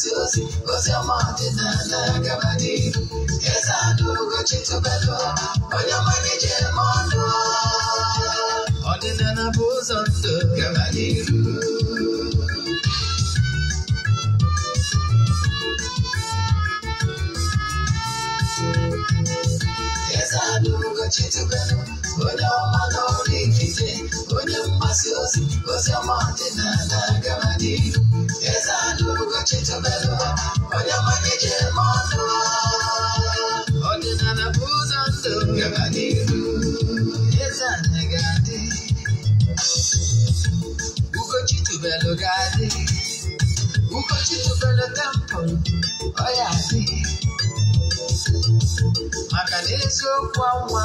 osi osi osi ọma ọdịna na-agabadị eze adụ ugochi tụbelụ onye ọma na-eje eme ọnụ ọdịnala bụ gabadị iru eze adụ ugochi tụbelụ onye ọma na oh, usiamate nanagamani ezanuruga chitobelwa onyamanije monwa ondinanabuzanzo gamaniru ezanegadi uko chitobelo gadi uko chitobelo tempo oyadi maka n'eziokwu anwa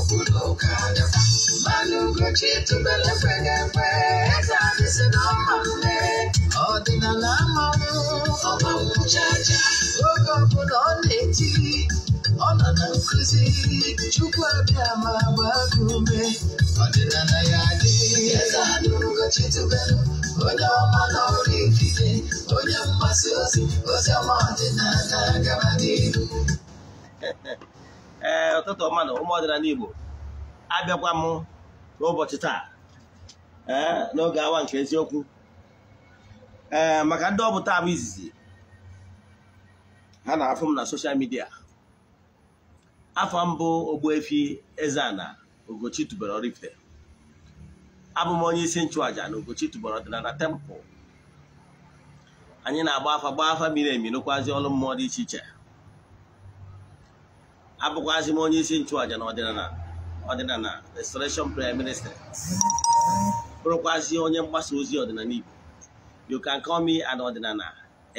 olùkọ́dà. Balógun Chitu bẹ̀rẹ̀ pẹ̀gẹ̀pẹ̀, Exarchus ọmọ rẹ̀, ọ̀dìnàlá máa ń ọmọ òun jájá. Oge ọ̀bụla ọ na-eti, ọ nọ na nkụzi, Chukwu abịa ma agba gị ee eh, ụtụtụ mmadụ ụmụ ọdịnala Igbo abịakwa m n'ụbọchị taa ee eh, n'oge awa nke eziokwu ee eh, maka ndị ọ bụ izizi ha na-afụ m na soshal midia afọ mbụ efi Eze-Ana ogochi tubelu Oraifite abụ m onye isi nchụàja na Ugochi tubelu ọdịnala tempụl anyị na-agba afa gbaa afa miri emi nụkwazi ọrụ mmụọ dị iche iche abụkwazị m onye isi nchụàja na ọdịnala na restoration prime minister bụrụkwazị onye mgbasa ozi ọdịnala Igbo you can call me an ọdịnala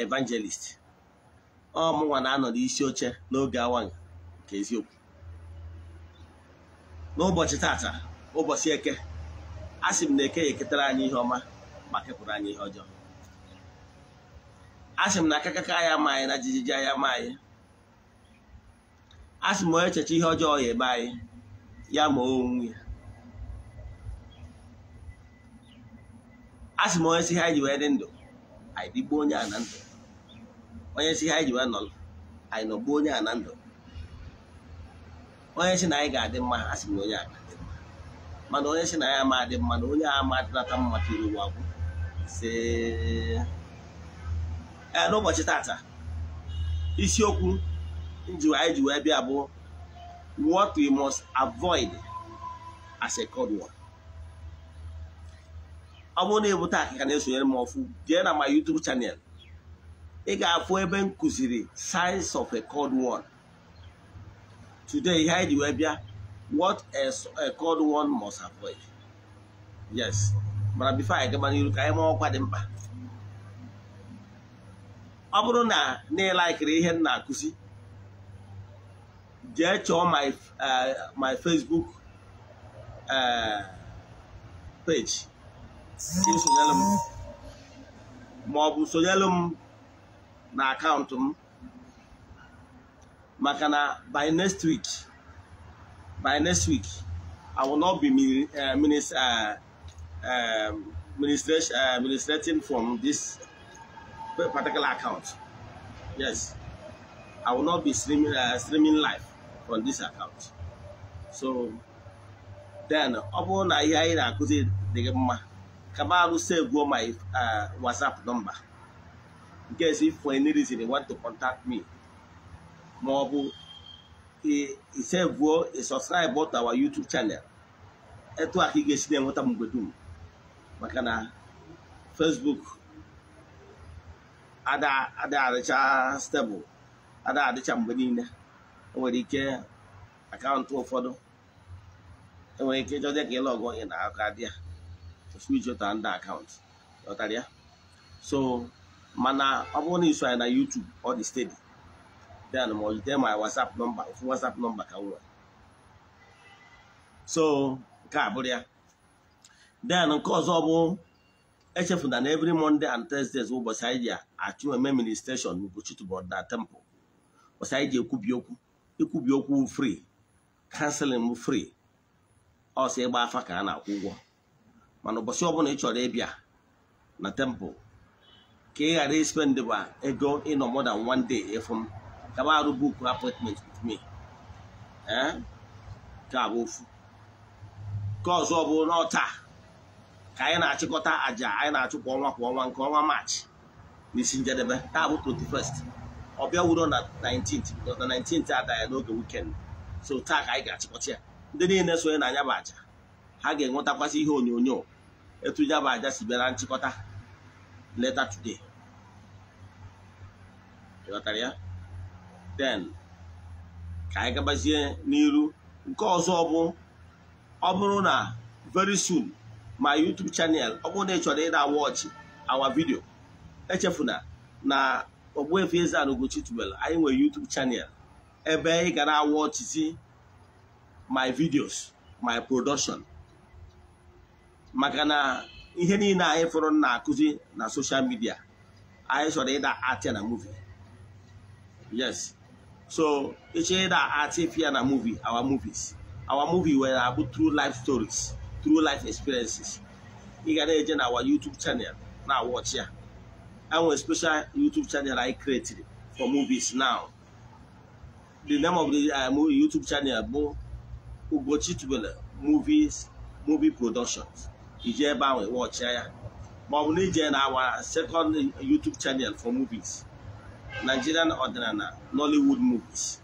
evangelist ọ mụnwa na-anọ n'isi oche n'oge awa nke eziokwu n'ụbọchị tata ụbọchị eke a sị m na eke ya eketara anyị ihe ọma ma kepụrụ anyị ihe ọjọọ a sị m na akakaka ya ma anyị na jijiji ya ma anyị a sị m onye echeche ihe ọjọọ ya ebe anyị ya ma onwe ya a sị m onye si ha iji ji wee dị ndụ anyị digbuo onye a na ndụ onye si ha wee ji wee nọrọ anyị nọgbuo onye a na ndụ onye si na anyị ga-adị mma a sị m onye a ga-adị mma mana onye si na ya ama adị mma na onye a ama adịnata mma tiri ụwa gwụ si ee n'ụbọchị tata isiokwu anyị ji wee bịa bụ what we must avoid as a code word ọ bụrụ na ebute akịka na-esonyere m ọfụ jee na ma YouTube channel ị ga-afụ ebe m kụziri signs of a code word today ihe anyị ji wee bịa what a code word must avoid yes mana before anyị gaba n'iru ka anyị mụọ ọkwa dị mkpa ọ bụrụ na na ịlaikiri ihe m na-akụzi jee chọọ my eh, Facebook eh, page maọbụ sonyelu m na akaụntụ m maka na by next week by next week I will not be eh, administrating from this particular account. Yes, I will not be streaming, uh, streaming live. on this account so then ọ bụrụ na ihe anyị na-akụzi dị gị mma ka m alụsa my uh, whatsapp nọmba nke si for any reason you want to contact me ma ọ bụ isevuo isubscribe to our YouTube channel etu aka ka ị ga-esi na-enweta m mgbe dum maka na Facebook ada adịcha stebụl ada adịcha mgbe niile enwere ike akaụntụ ụfọdụ enwere ike ịjọ dị ka ịlọgụ ị na aka dị ya ofu iji ụtara ndị akaụntụ ọtara ya so mana ọ bụrụ na iso anyị na YouTube ọ dị stedi den ma ọ jide ma WhatsApp nọmba ofu WhatsApp nọmba ka m nwere so nke a bụrụ ya then nke ọzọ bụ echefu na every Monday and Thursdays ụbọchị anyị ji achụ eme ministration n'Ugochitubọ na temple ụbọchị anyị ji ekwubi okwu ikwubi okwu free kanselin free ọsọ ịgba afa ka a na-akwụ ụgwọ mana ụbọchị ọbụla ị chọrọ ịbịa na temple ka ị ghara ispendịba ego ịnọ more than one day efu ka arụ buku appointment with me eh? ka abụ ofu ọzọ bụ n'ọta ka anyị na-achịkọta àjà anyị na-achụ kwa ọnwa kwa ọnwa nke ọnwa maachị n'isi njedebe taa bụ 21 ọbịa wuro na 19th because na 19th ada ya n'oge wikend so taa ka anyị ga achịkọcha ya ndị niile sonye na anya bụ aja ha ga-enwetakwasị ihe onyonyo etu ya bụ aja si bịara nchịkọta later today ịghọtara ya then ka anyị gabazie n'iru nke ọzọ bụ ọ bụrụ na very soon my YouTube channel ọ bụrụ na ị chọrọ ịda watch our video echefuna na efe Eze-Ana Ugochi tubelu anyị nwere YouTube chanel ebe ị gara na-awọchizi my videos my production maka na ihe niile anyị fọrọ na-akụzi na social media anyị chọrọ ịda atịa na movie yes so ịchọ ịda fia na movie our movies our movie were abụ true life stories true life experiences ị gara eje na our YouTube channel na-awọchi ya have a special YouTube channel I created for movies now. The name of the uh, YouTube channel is Ugochi Movies Movie Productions. You can watch ya. But we need our second YouTube channel for movies. Nigerian Ordinana Nollywood Movies.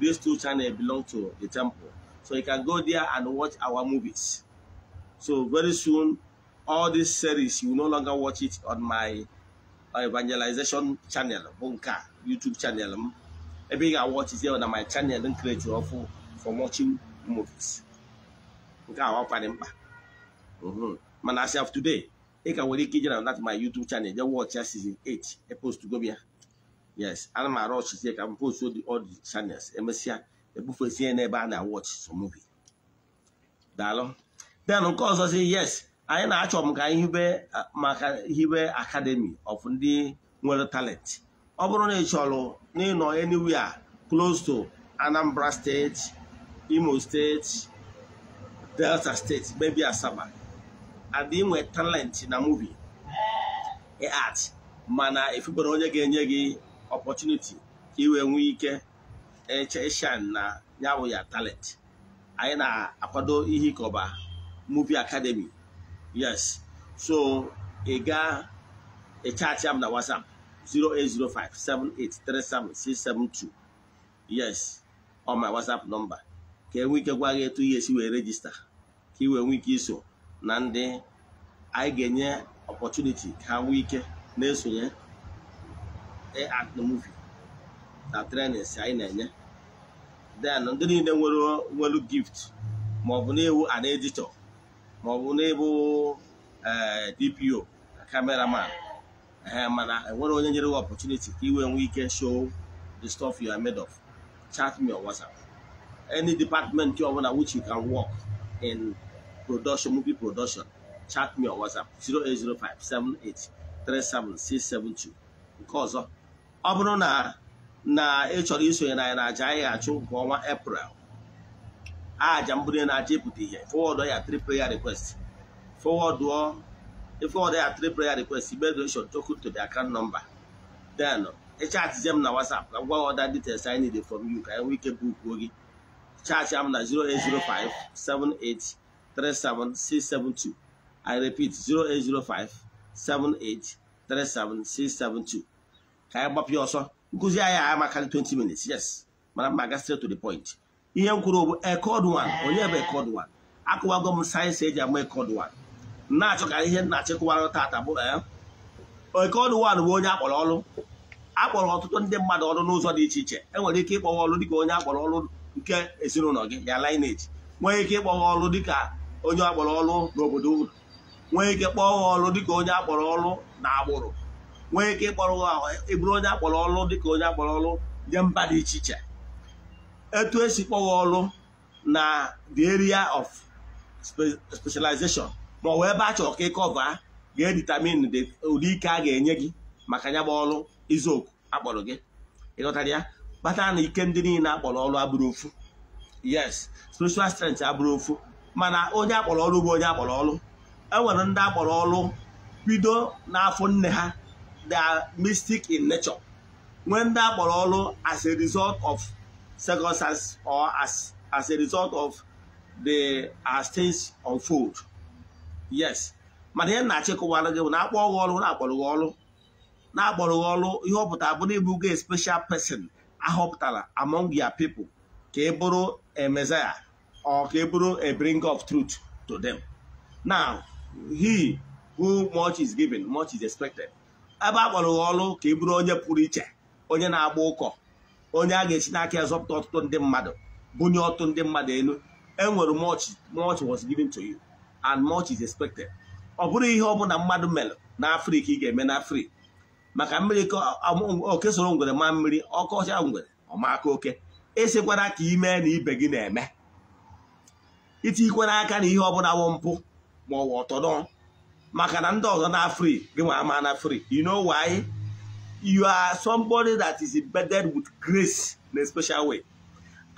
These two channels belong to the temple. So you can go there and watch our movies. So very soon, all these series, you will no longer watch it on my Uh, evangelization channel bụ nke a YouTube channel m ebe ị ga-awọchizie na my channel m kreti ọfụ for watching movies nke a ọkparị mkpa mana as of today ị ka nwere ike ije na that my YouTube channel jee watch ya season 8 epost gobia yes ana m arụ ọchịzie ka m post all the channels emesịa ebufezie n'ebe a na-awọch so movie daalụ then nke yes anyị na-achọ m ka hibe maka hibe akademi of ndị nwere talent ọ bụrụ na ị chọrọ n'ịnọ anywhere close to Anambra steeti Imo steeti Delta State maybe Asaba and nwe talent na muvi art mana efubere onye ga-enye gị opportunity ka ị nwee ike echeshan na ya bụ ya talent anyị na-akwado ihe ịkọba muvi Akademi. yes so ị gaa na m na whatsapp 672 yes on my whatsapp number ka enwe ike gwa gị etu ihe esi wee rejista ka i wee nwee ike iso na ndị anyị ga-enye opportunity ka ha nwee ike na-esonye e atmuvi na trenis anyị na-enye then ndị niile nwere gift ma ọ na-ewu an ma ọ bụ n'ebe eh, DPO cameraman mana enwere onye nyere gị opportunity ka iwe nwee ike show the stuff you are made of chat me on WhatsApp any department ọ bụla which you can work in production movie production chat me on WhatsApp 08057837672 nke ọzọ ọ bụrụ na na ị chọrọ isonye na anyị na aja anyị ga-achụ nke ọnwa April aja mbụrụ na-aja ịpụta ihe fọwọdụ ya tri prayer request fọwọdụ ịfọwọdụ ya tri prayer request igbe donation token to the account number then ịchatizie m na WhatsApp ka m gwa ọda details I need from you ka anyị nwee ike bukwuo gị chaatị m na 0805 78 37672 I repeat 0805 78 37672 ka anyị gbapịa ọsọ nkụzi anyị a maka 20 minutes yes mana mma aga straight to the point ihe m kwuru bụ onye bụ ekod 1 akụwago m sayensị eji ama ekod na-achọ ka ihe na-achịkwarụ tata bụ ekod bụ onye akpọrọ ọrụ akpọrọ ọtụtụ ndị mmadụ ọrụ n'ụzọ dị iche iche enwere ike ịkpọwa ọrụ dịka onye akpọrọ ọrụ nke ezinụlọ gị ya lineage nwee ike ịkpọwa ọrụ dịka onye akpọrọ ọrụ n'obodo unu nwee ike kpọọ ọrụ dịka onye akpọrọ ọrụ na agbụrụ nwee ike ịkpọrọ ịbụrụ e onye akpọrọ ọrụ dịka onye akpọrọ ọrụ nye mba dị iche iche etu esi kpọghọ ọrụ na the area of specialization ma ọ bụ ebe a chọrọ ka ịkọva ga-editamin ụdị ike a ga-enye gị maka ya gba ọrụ izuoku akpọrọ gị ịghọtara ya Kpata na ike ndị niile akpọrọ ọrụ abụrụ ofu yes spiritual strength abụrụ ofu mana onye akpọrọ ọrụ bụ onye akpọrọ ọrụ enwere ndị akpọrọ ọrụ bido n'afọ nne ha they mystic in nature nwee ndị akpọrọ ọrụ as a result of circumstances or as, as a result of the as uh, things unfold yes mana ihe na-achịkọwara gị bụ na akpọ gị ọrụ na-akpọrọ gị ọrụ na-akpọrọ gị ọrụ ihe ọ pụtara bụrụ ịbụ gị special person ahọpụtara among your people ka ị bụrụ a messiah or ka ị bụrụ a bring of truth to them now he who much is given much is expected ebe a akpọrọ gị ọrụ ka ị bụrụ onye pụrụ iche onye na-agba ụkọ onye a ga-echi n'aka ya zọpụta ọtụtụ ndị mmadụ bunye ọtụtụ ndị mmadụ elu enwere much much was given to you and much is expected ọ bụrụ ihe ọbụla mmadụ mere na afrịka ị ga-eme na afrịka maka mmiri oke soro ngwere ma mmiri ọkọcha ngwere ọmaka oke ịsịkwara e ka ime na ibe gị na-eme itinyikwara aka na ihe ọbụla wụ mpụ ma ọ wụ ọtọdọ maka na ndị ọzọ na afrịka gị nwa ama na afrịka you know why you are somebody that is embedded with grace in a special way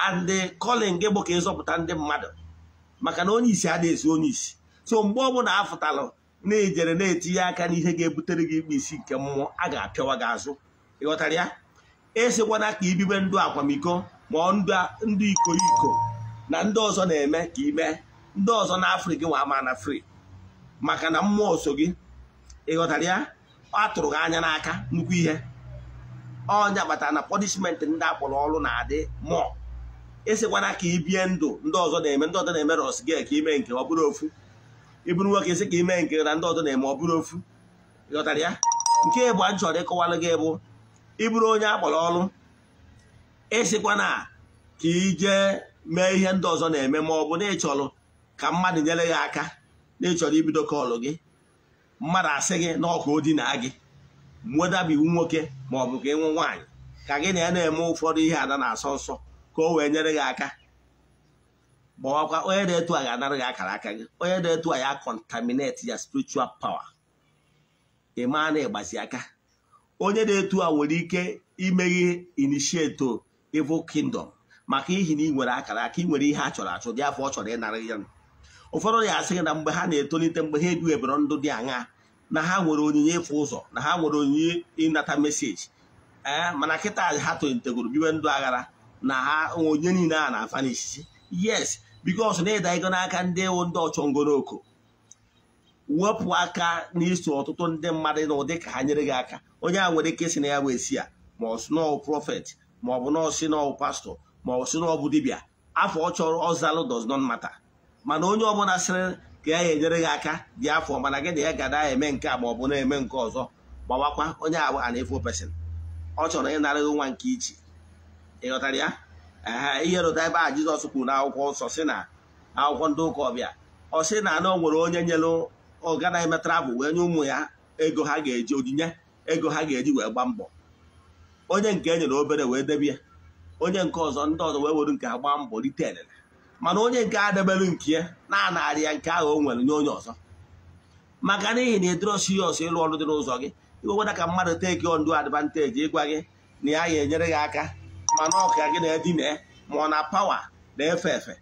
and calling gị bụ ka ịzọpụta ndị mmadụ maka na onye isi adịghị esi onye isi so mgbe ọbụla afụtalụ na-ejere na-etinye aka n'ihe ga-ebutere gị ikpe isi nke mmụọ a ga-apịawa gị azụ ịghọtara ya esikwana ka ibibe ndụ akwamiko ma ndụ iko iko na ndị ọzọ na-eme ka ime ndị ọzọ na afrị nwa na fri maka na mmụọ so gị ịghọtara ya ọ tụrụ gị anya n'aka nnukwu ihe ọnya kpatara na pọnishment ndị akpọrọ ọrụ na-adị mụọ esikwana ka ị bie ndụ ndị ọzọ na-eme ndị ọzọ na-eme ros gị ka ime nke ọ bụrụ ofu ịbụrụ nwoke esi ka ime nke na ndị ọzọ na-eme ọ bụrụ ofu ịghọtara ya nke bụ a chọrọ ịkọwalụ gị bụ ịbụrụ onye akpọrọ ọrụ esikwana ka ije mee ihe ndị ọzọ na-eme ma ọ bụ na ịchọrọ ka mmadụ nyere gị aka na ịchọrọ ibido kọlụ gị mmadụ asị gị na ọkụ o gị mwedabi nwoke ma ọ bụ ka ịnwe nwaanyị ka gị na ya na-eme ụfọdụ ihe ada na-asọ nsọ ka o wee nyere gị aka gbawakwa onye na-etu a ga-anara gị akara aka gị onye na-etu a ya kọntamineti ya spiritual pawa ị maa na ịgbazi aka onye na-etu a nwere ike imeghe inishieto evil kingdom maka ihi na ị nwere akara aka ị nwere ihe a chọrọ achọ dị afọ ọ chọrọ ịnara ya nụ ụfọdụ ya asị na mgbe ha na-etolite mgbe ha eduebere ndụ dị aṅa na ha nwere onyinye ịfụ ụzọ na ha nwere onyinye ịnata meseji ee eh, mana kịta ha tolitegoro biwe ndụ aghara na ha onye niile a na-afa n'isisi yes bikos na ịda ego n'aka ndị ewu ndị ọchọngoroko wepụ aka n'iso ọtụtụ ndị mmadụ ụdị ka ha nyere gị aka onye a nwere ike isi na ya wee si ya ma ọ profet maọbụ ọ prọfet ma ọ bụ na ọ pastọ maọbụ ọ sị afọ ọ chọrọ ọzalụ does not mana onye ọbụla sịrị ka ya enyere gị aka dị afọ mana gị na ya gada eme nke a ma na-eme nke ọzọ gbawakwa onye agba a na-efo pesin ọ chọrọ ịnara gị nwa nke ichi ịghọtara ya ihe rụta ebe a Jizọs kwuru na akwụkwọ nsọ si na akwụkwọ ndị ụka ọbịa ọ sị na na o nwere onye nyere ọgana eme bụ wee nye ụmụ ya ego ha ga-eji onyinye ego ha ga-eji wee gba mbọ onye nke e nyere obere wee debie onye nke ọzọ ndị ọzọ wee weru nke ha gbaa mbọ rite elele mana onye nke adebelu nke ya na-anarị ya nke ahụ o nwere nye onye ọzọ maka n'ihi na ya ọsọ ịlụ ọrụ dị n'ụzọ gị iweweda ka mmadụ teki ndụ advanteji ịgwa gị na ya ya enyere gị aka mana ọka gị na-edina ma ọ na pawa na-efe efe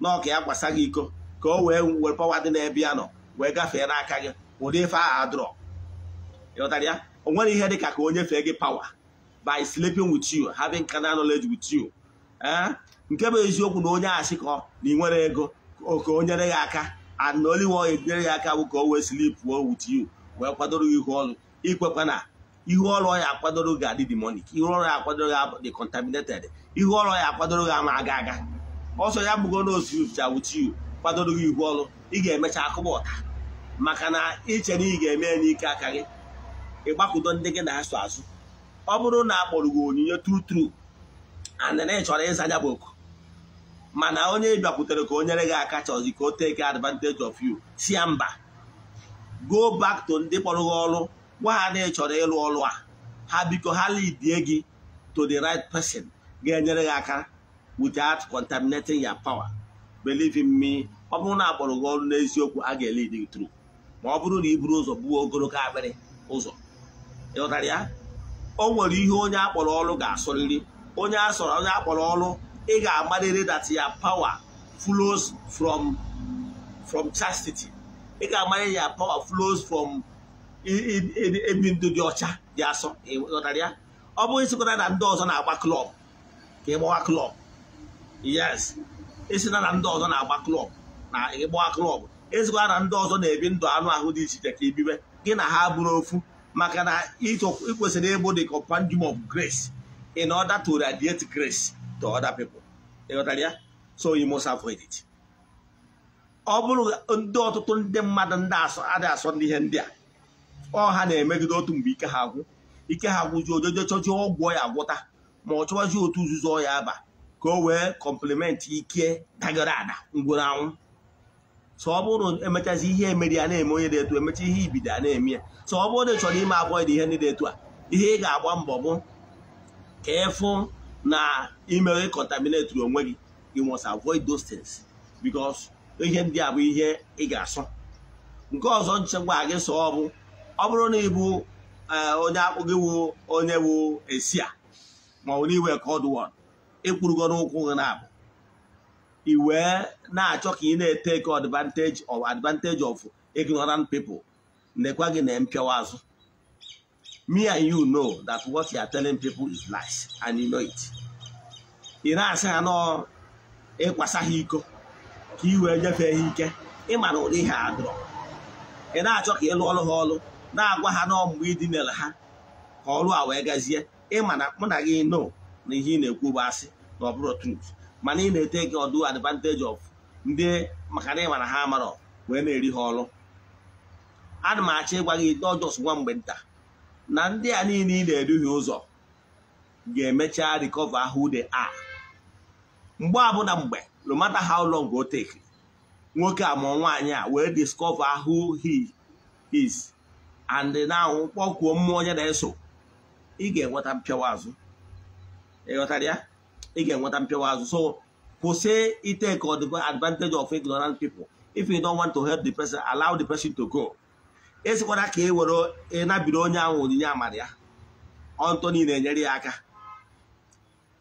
na ọka ya gbasa gị iko ka o wee were pawa dị na ya nọ wee gafee n'aka gị ụdị ife ahụ adrọ ịghọtara ya o nwere ihe dị ka ka onye fee gị pawa by sleeping with you having carnal knowledge with you eh? nke bụ eziokwu na onye asị ka na ị nwere ego ka o nyere ya aka ana oliwo enyere ya aka bụ ka o wee slip pụọ with you wee kwadoro ihu ọrụ ikwekwa na ihu ọrụ ya akwadoro gị adị demonic ihu ọrụ ya akwadoro gị dị contaminated ihu ọrụ ya akwadoro gị ama aga aga ọsọ ya bụgo na osiricha with you kwadoro gị ihu ọrụ ị ga-emecha akụba ọta maka na iche na ị ga-eme ya n'ike aka gị ịgbakọdo ndị gị na-asụ azụ ọ bụrụ na akpọrọ gị onyinye tru tru and na ị chọrọ ịza ya bụ oku mana onye bịakwutere ka o nyere gị aka chọzi ka o take advantage of you si ya mba go back to ndị kpọrọ gị ọrụ gwa ha na ị chọrọ ịlụ ọrụ a ha biko ha lidie gị to the right person ga-enyere gị aka without contaminating your power believe in me ọ bụrụ na akpọrọ gị ọrụ n'eziokwu a ga-elid gị ma ọ bụrụ na i buru ụzọ gbuo ogologo akpịrị ụzọ ịghọtara ya o nwere ihe onye akpọrọ ọrụ ga asụrịrị onye asọrọ onye akpọrọ ọrụ ị ga-amarịrị that ya power flows from from chastity ị ga-amanye ya power flows from ebi ndụ dị ọcha dị asọ ịghọtara ya ọ bụghị sịkwana na ndị ọzọ na-agba klọb ka ịgbawa klọb yes esina na ndị ọzọ na-agba klọb na ịgbawa klọb ezikwa na ndị ọzọ na-ebi ndụ anụ ahụ dị iche iche ka ebibe gị na ha bụrụ ofu maka na ịkwesịrị ịbụ the compendium of grace in order to radiate grace to other people ịghọtara ya so you must ọ bụrụ ndị ọtụtụ ndị mmadụ ndị adị asọ ndị ihe ndị a ọ ha na-emegide otu mgbe ike ha agwụ ike ha agwụjuo ojojo chọjuo ọgwụ ya agwụta ma ọ chọwazi otu nzuzo ya aba ka o wee kọmplimenti ike dagara ada ngwụrụ anwụ so ọ bụrụ emechazi ihe emeri ya na-eme onye dị etu emecha ihe ibido na-eme ya so ọ bụrụ na ị chọrọ ime abụọ dị ihe ndị dị etu a ihe ị ga-agba mbọ bụ ka ịfụ na imere contaminate onwe gị gị must avoid those things because ihe ndị a bụ ihe ị ga asụ nke ọzọ nchekwa gị so ọ bụ ọ bụrụ na ịbụ eh, onye akpụ gị wụ onye wụ esi a ma ọ bụ n'iwe kod wod ịkpụrụgo n'ụkwụ gị na-abụ i wee na-achọ ka ị na-eteke advantage of advantage of ignorant people nekwa gị na mpịawa azụ me and you know that what you are telling people is lies and you know it ị na-asị ha nọ ịkwasa ha iko ka i wee nyefee ha ike ịmara na ụdị ihe adụrọ ị na-achọ ka ị lụọrụ ha ọrụ na-agwa ha n'ọmụmụ idinere ha ka ọrụ a wee gazie ịmana na mụ na gị no na ihe ị na-ekwu bụ asị na ọbụrụ bụrụ mana ị na-ete gị ọdụ advantage of ndị maka na ịma na ha amarọ wee na-eri ha ọrụ ana m achọ ịgwa gị dọjọs nwa mgbe nta na ndị a niile ị na-eduhie ụzọ ga-emecha recover who they are mgbe abụna mgbe no matter how long o take nwoke a ma nwaanyị a wee discover who he is and now kpọkwuo mmụọ onye na-eso ị ga-enweta mpịawa azụ ịghọtara ya ị ga-enweta so kwụsị itake advantage of ignorant people if you don't want to help the person allow the person to go esikwara ka e were ịnabiri e onye ahụ onyinye amara ya ọntọ niile enyere ya aka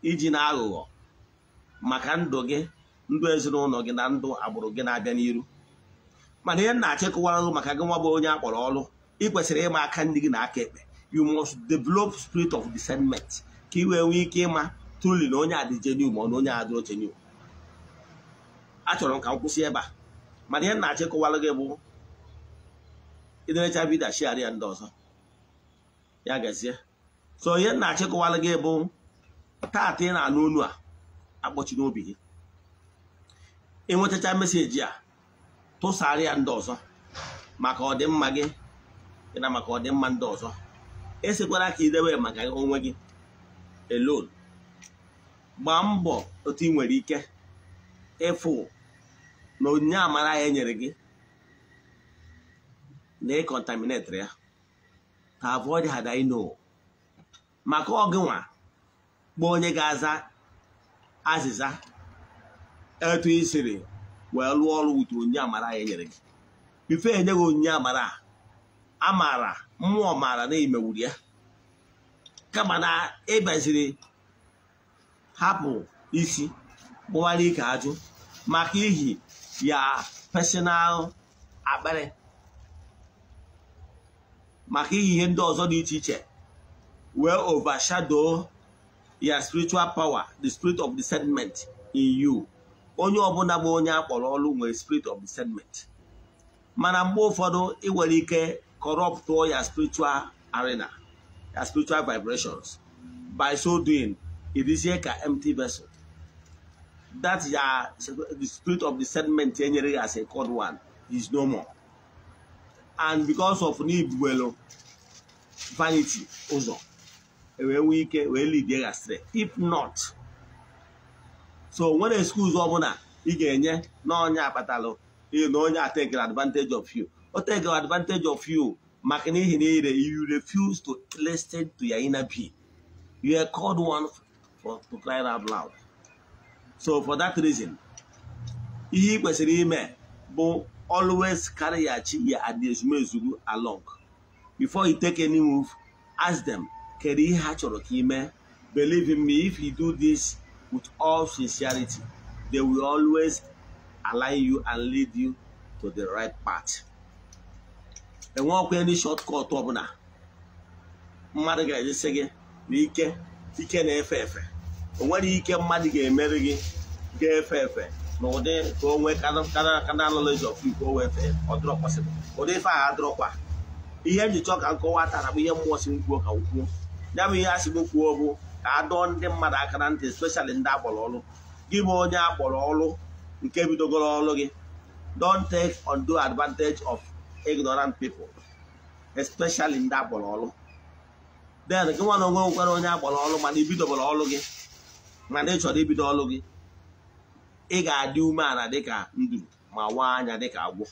iji na aghụghọ maka ndụ gị ndụ ezinụlọ gị na ndụ agbụrụ gị na-abịa n'iru mana ihe na-achịkọwarụ maka gị nwa bụ onye akpọrọ ọrụ ị kwesịrị ịma aka ndị gị na aka ekpe you must develop spirit of discernment ka ị wee nwee ike ịma truli na onye adị genuine ma ọ na onye adịrọ genuine achọrọ m ka m kwụsị ebe a mana ihe na-achịkọwarụ gị bụ iderecha vidio shiara ya ndị ọzọ ya gazie so ihe nna achịkụwala gị bụ tata ị na-anụ olu a akpọchi n'obi gị ịnwetacha meseji a tụsara ya ndị ọzọ maka ọdịmma gị na maka ọdịmma ndị ọzọ esekwara ka idebe maka onwe gị elon gbaa mbọ otu ị nwere ike ịfụ na onyinye amara ya nyere gị na ịkọntaminetịrị ya ha abụọ dị ha maka ọgịnwa kpọọ onye ga-aza azịza etu i siri wee lụọ ọrụ wutu onye amara ya nyere gị ife enye gị onye amara maara mmụọ maara na imewuru ya kama na ịbaziri hapụ isi kpụwara ike ajụ maka ihi ya personal akpịrị maka iyi ihe ndị ọzọ dị iche iche wee overshadow ya spiritual power the spirit of discernment in you onye ọbụla bụ onye akpọrọ ọrụ nwere spirit of discernment mana mgbe ụfọdụ ị nwere ike corrupt ya spiritual arena ya spiritual vibrations by so doing ịdịzie ka empty vessel that ya the spirit of discernment enyere ya as a code one is no more. and because of na vanity ụzọ e wee nwee ike wee lidie ya straight if not so nwere excuse ọbụla ị ga-enye na onye akpatalụ na onye atekere advantage of you o tekere advantage of you maka n'ihi na ire you refuse to listen to your inner being you are called one for to cry out loud so for that reason ihe ị kwesịrị ime bụ always carry your ya at the ezumezugu along before you take any move ask them kedu ihe ha chọrọ ka ime believe in me if you do this with all sincerity they will always align you and lead you to the right path enwe ọkwa any shortcut ọbụla mmadụ ga-ejesi gị na ike ike na-efe efe onwere ike mmadụ ga-emeri gị ga-efe efe n'ụdị ka o nwee ka of Igbo o fee ọ dịrọ ụdị ife ahụ kwa ihe m ji chọọ ka m tara ihe mmụọ si m kwuo ka m kwuo ya bụ ihe a sị m kwuo bụ ka a dọọ ndị mmadụ aka na ntị especially ndị akpọrọ ọrụ gị bụ onye akpọrọ ọrụ nke bidogoro ọrụ gị don't take do advantage of ignorant people especially ndị akpọrọ ọrụ then gị nwa na onwe nwekwara onye akpọrọ ọrụ mana ibidobere ọrụ gị mana ị chọrọ ibido ọrụ gị ị ga-adị umeala dịka nduru ma waa anya dịka agwọ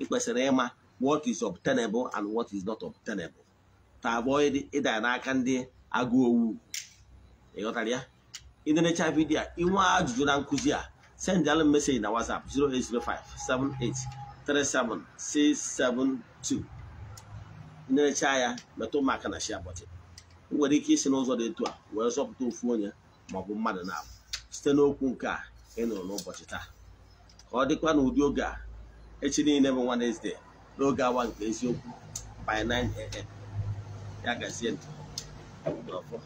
ị kwesịrị ịma what is obtainable and what is not obtainable ta abụọ ịda n'aka ndị agụ owu ịghọtara ya ịnenecha vidiyo ịnwe ajụjụ na nkụzi a sendalụ meseji na whatsapp 08057837672 ịnenecha ya metụ maka na shia bọtị nwere ike isi n'ụzọ dị etu a wee zọpụta ofu onye maọbụ mmadụ na-abụ site n'okwu nke a ị nụrụ n'ụbọchị taa ka ọ dịkwa na ụdị oge a echi niile bụ Wednesday n'oge awa nke eziokwu by 9 a.m. ya gazie ndụ n'ọfọ